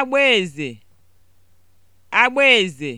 agbaeze agbaeze